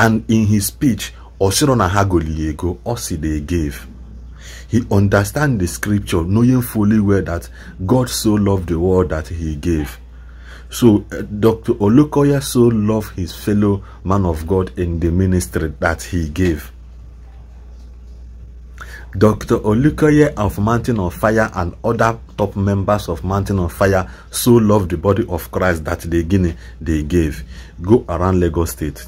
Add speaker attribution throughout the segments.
Speaker 1: And in his speech, Osirona Hagoliego, Osi they gave. He understands the scripture, knowing fully well that God so loved the world that he gave. So uh, Dr. Olukoya so loved his fellow man of God in the ministry that he gave. Dr. Olukoya of Mountain of Fire and other top members of Mountain of Fire so loved the body of Christ that they, guinea they gave. Go around Lagos State.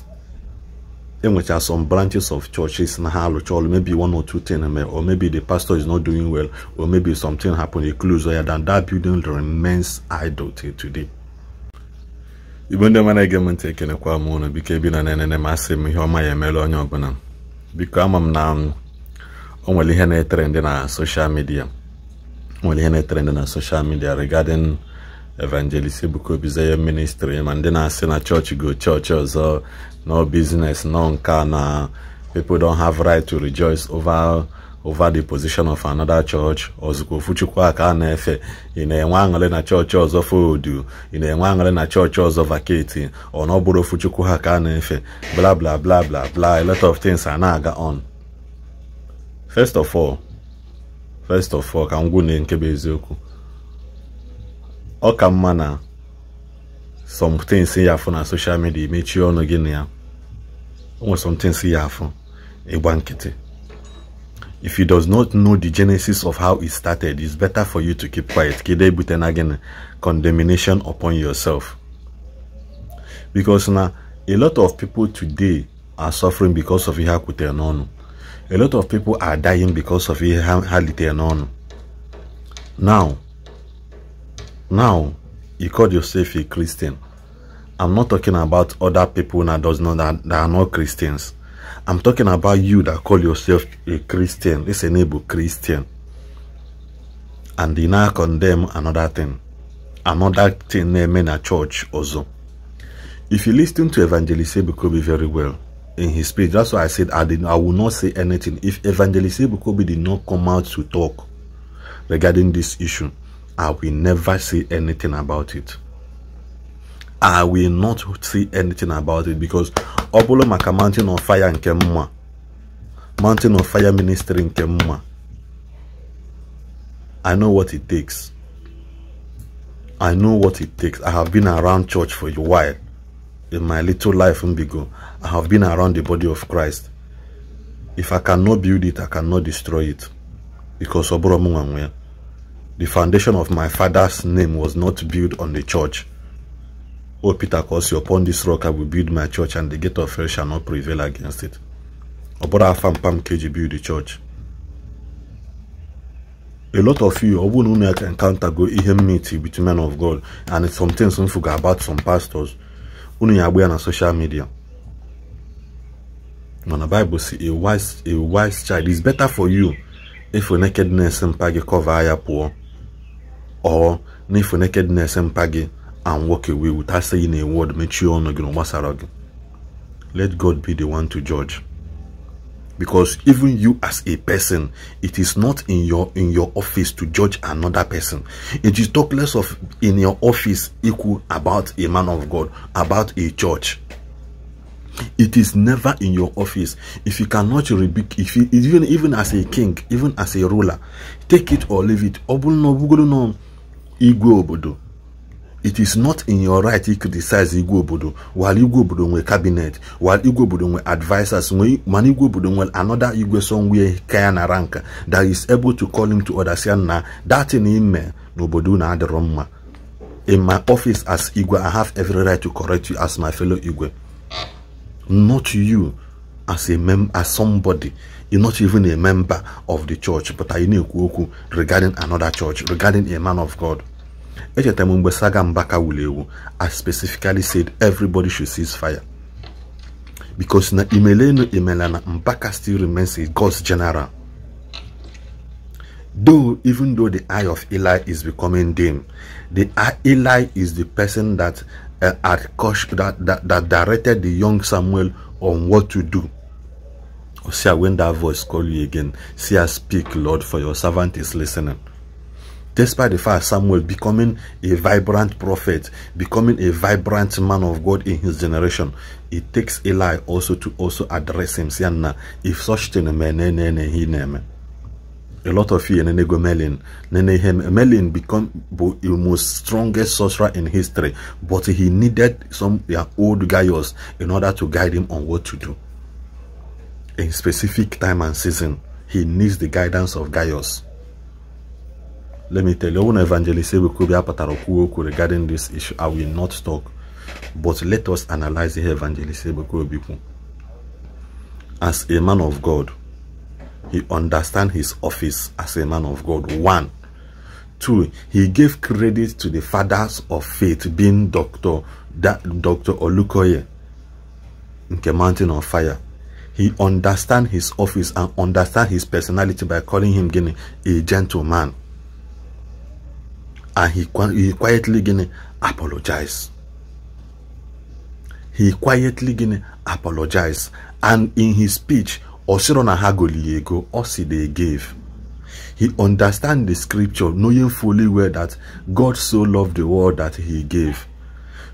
Speaker 1: enwecha some branches of churches na ha alụcha ọlụ maybe one or two things mere eh, or maybe the pastor is not doing well or maybe something happened e close ya than that building remains idle till today igbo ndị mara ege m ntị ekelekwa m ụnụ biko ebi na na-enene m asị m ihe ọma ya emela onye ọbụla biko ama m na o nwere ihe na-etere ndị na social media nwere ihe na-etere ndị na social media regarding evangelist bụkwa Obi ya ministri ma ndị na-asị na chọọchị go chọọchị ọzọ nọ biznes nọ nka na people don have right to rejoice over over the position of another church ọzụkwa ofuchukwu a ka a na-efe ị na-enwe aṅụrị na chọọchị ọzọ fodu ị na-enwe aṅụrị na chọọchị ọzọ vaketi ọ na ofuchukwu ha ka a na-efe bla bla bla bla bla a lot of things a na-aga on first of all first of all ka m nke bụ eziokwu ọ ka some things somethings ya afụ na social media mechie ọnụ gị na ya onwe somethings ya afụ ịgba nkịtị if you does not know the genesis of how it started it's better for you to keep quiet Kide buten again condemnation upon yourself because now a lot of people today are suffering because of ihe ha a lot of people are dying because of ihe ha now now, you call yourself a Christian. I'm not talking about other people that does not that, that are not Christians. I'm talking about you that call yourself a Christian. It's a neighbor Christian. And they now condemn another thing. Another thing name in a church also. If you listen to Evangelist Ebukobi very well in his speech, that's why I said I did I will not say anything. If Evangelist Ebukobi did not come out to talk regarding this issue, I will never say anything about it. I will not say anything about it because Obolo Maka Mountain of Fire and Kemma. Mountain of Fire Ministry in Kemma. I know what it takes. I know what it takes. I have been around church for a while. In my little life in Bigo, I have been around the body of Christ. If I cannot build it, I cannot destroy it. Because Oboro Mungangwe. The foundation of my father's name was not built on the church. O Peter you upon this rock I will build my church, and the gate of hell shall not prevail against it. brother, Afam Pam KG build the church. A lot of you, Obun Umek encounter go enmity between men of God, and it's something some forget about some pastors. Unu yagwe on social media. When the Bible says a wise, a wise child is better for you if your nakedness and pagi cover higher poor or for nakedness and pagi and walk away without saying a word mechie ọnụ gị na let god be the one to judge because even you as a person it is not in your in your office to judge another person it is talk less of in your office equal about a man of god about a church it is never in your office if you cannot rebuke if you even even as a king even as a ruler take it or leave it igwe obodo it is not in your right to criticize igwe obodo while igwe obodo nwee cabinet while igwe obodo nwe advisers mana igwe obodo nwere another igwe somewhere ka na rank that is able to call him to order say na that ime n'obodo na adịrọ mma in my office as igwe i have every right to correct you as my fellow igwe not you as a mem as somebody you're not even a member of the church but i na okwu regarding another church regarding a man of god I Saga Mbaka specifically said everybody should cease fire. Because na Imeleno Imelana Mbaka still remains a God's general. Though, even though the eye of Eli is becoming dim, the eye, Eli is the person that uh, had coached, that, that, that directed the young Samuel on what to do. See, when that voice call you again, see, I speak, Lord, for your servant is listening despite the fact Samuel becoming a vibrant prophet, becoming a vibrant man of God in his generation, it takes Eli also to also address him, saying, if such thing, a lot of you nene go Merlin. Nene him Merlin become the most strongest sorcerer in history, but he needed some yeah, old guys in order to guide him on what to do. In specific time and season, he needs the guidance of Gaius. Let me tell you, when Evangelist Ebukubia Pataroku Oku regarding this issue, I will not talk. But let us analyze the Evangelist Ebukubia As a man of God, he understands his office as a man of God. One. Two, he gave credit to the fathers of faith, being Dr. Dr. Olukoye, the Mountain of Fire. He understands his office and understands his personality by calling him a gentleman and he, he quietly gini apologized. He quietly gini apologized and in his speech osiro na ha osi they gave. He understand the scripture knowing fully well that God so loved the world that he gave.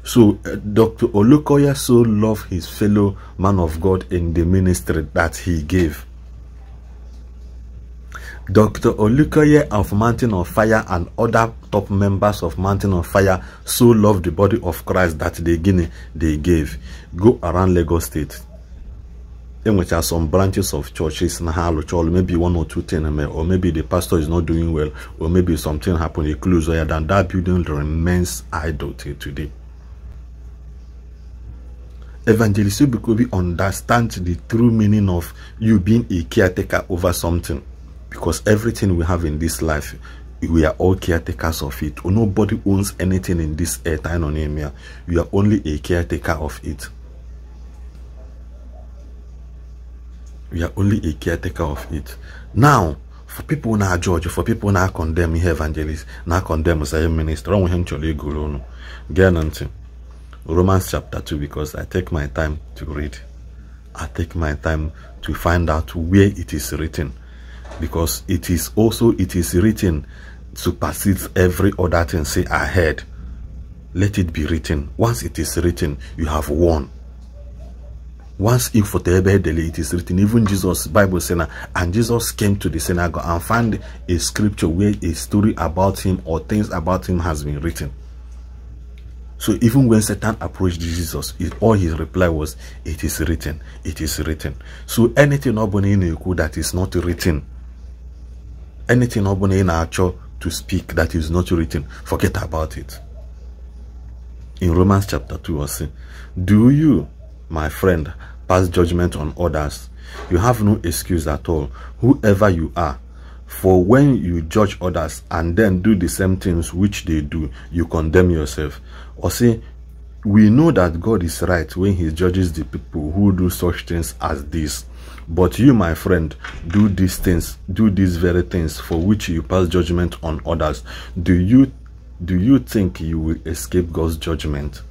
Speaker 1: So uh, Dr. Olukoya so loved his fellow man of God in the ministry that he gave Dr. Olukoye of Mountain of Fire and other top members of Mountain of Fire so loved the body of Christ that they gave go around Lagos State. In which are some branches of churches in Chol. maybe one or two things, eh, or maybe the pastor is not doing well, or maybe something happened, a close higher than that building remains idle till today. Evangelist we understand the true meaning of you being a caretaker over something. Because everything we have in this life, we are all caretakers of it. Nobody owns anything in this earth, Anonemia. We are only a caretaker of it. We are only a caretaker of it. Now, for people now, judge for people now, condemn me, evangelist Now condemn say minister romans chapter 2 because i take my time to read i take my time to find out where it is written because it is also it is written supersedes every other thing say ahead. let it be written once it is written you have won once in for it is written even jesus bible saying and jesus came to the synagogue and found a scripture where a story about him or things about him has been written so even when Satan approached Jesus, all his reply was, it is written, it is written. So anything that is not written anything obula in ị to speak that is not written forget about it in romans chapter 2 ọ sị do you my friend pass judgment on others you have no excuse at all whoever you are for when you judge others and then do the same things which they do you condemn yourself or say we know that God is right when he judges the people who do such things as this. But you, my friend, do these things, do these very things for which you pass judgment on others. Do you do you think you will escape God's judgment?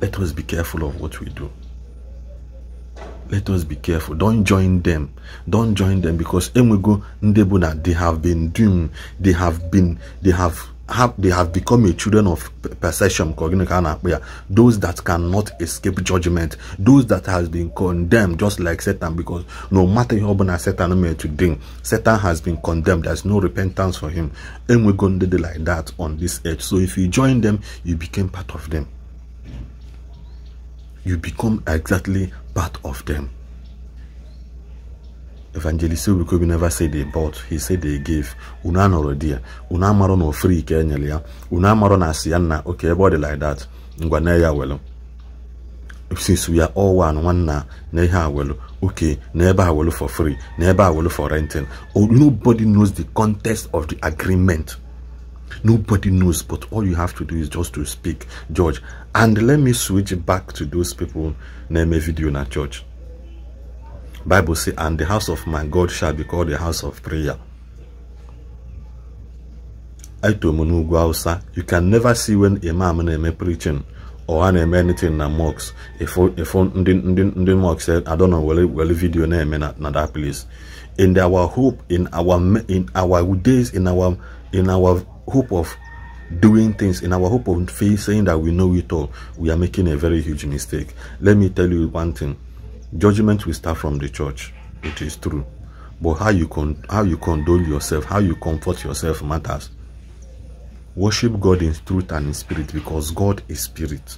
Speaker 1: Let us be careful of what we do. Let us be careful. Don't join them. Don't join them because Emwego Ndebuna, they have been doomed. They have been, they have have they have become a children of perception those that cannot escape judgment those that has been condemned just like satan because no matter how bad satan may to satan has been condemned there's no repentance for him and we're going to do like that on this earth so if you join them you became part of them you become exactly part of them evangelist obrikobi never said they bought he said they gave unu anọrọ di ya unu amarọ na ofri ka ya unu amarọ na ya nna oke like that ngwa na ya welu since we are all one one na ihe awelu okay na ebe for free na ebe for renting oh, nobody knows the context of the agreement nobody knows but all you have to do is just to speak judge and let me switch back to those people na a video na church Bible says, and the house of my God shall be called the house of prayer. You can never see when Imam Neme preaching or an eme anything na mocks. If if ndị ndị ndị mocks said, I don't know well well video na eme na that place. In our hope, in our in our days, in our in our hope of doing things in our hope of faith saying that we know it all we are making a very huge mistake let me tell you one thing Judgment will start from the church. It is true. But how you, con how you condole yourself, how you comfort yourself matters. Worship God in truth and in spirit because God is spirit.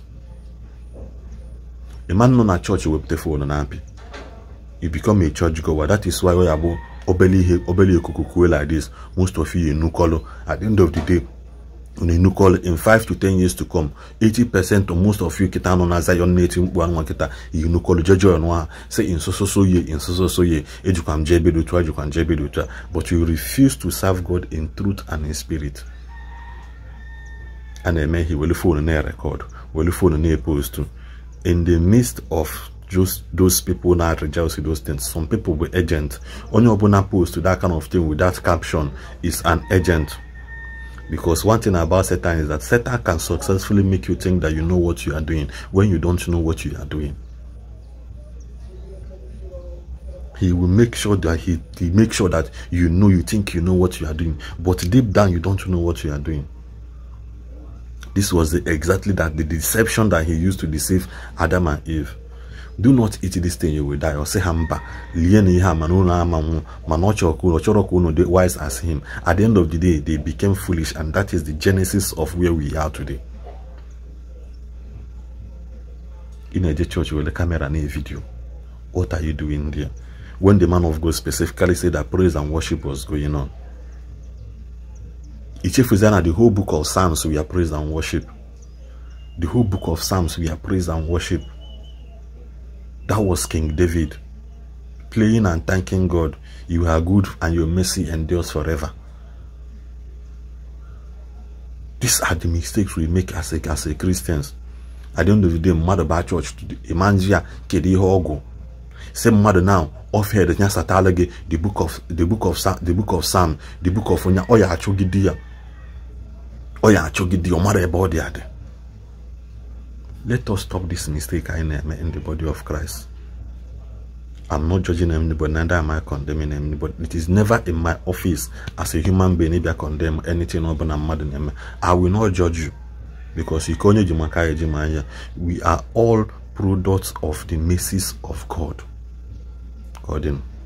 Speaker 1: A man church, na will wepụta one na happy. you become a church goer. That is why we are obeli obeli kukuwe like this. Most of you in Nukolo. At the end of the day, unu call in 5 to 10 years to come 80% of most of you kita nọ na Zion na-eti mkpu anwa kita unu call jeje ọnụ ha say in so so so ye in so so so ye ejikwa m jebe dị otu a jebe but you refuse to serve God in truth and in spirit a na he will phone fon record, will phone fon post epostu in the midst of just those people that rejoice those things. Some people were agent. Only upon post to that kind of thing with that caption is an agent. Because one thing about Satan is that Satan can successfully make you think that you know what you are doing when you don't know what you are doing. He will make sure that he, he make sure that you know you think you know what you are doing, but deep down you don't know what you are doing. This was the, exactly that the deception that he used to deceive Adam and Eve do not eat this thing you will die or say "Hamba, mba lie na ihe a mana chọrọ wise as him at the end of the day they became foolish and that is the genesis of where we are today ị na-eje camera na video what are you doing there when the man of god specifically said that praise and worship was going on Ichefuzana, the whole book of Psalms, we are praise and worship. The whole book of Psalms, we are praise and worship. That was King David praying and thanking God. You are good and your mercy endures forever. These are the mistakes we make as a, as a Christians. At the end of the day, mmadụ baa church ịmanji kedi kedu Same ọgwụ now. mmadụ na ofhed the book of the book of the book of Psalm the book of onye ọ ya achụgide ya ọ ya achụgide ya let us stop this mistake in, in the body of Christ. I'm not judging anybody, neither am I condemning anybody. It is never in my office as a human being if I condemn anything or mad I will not judge you because we are all products of the messes of God. God, you know.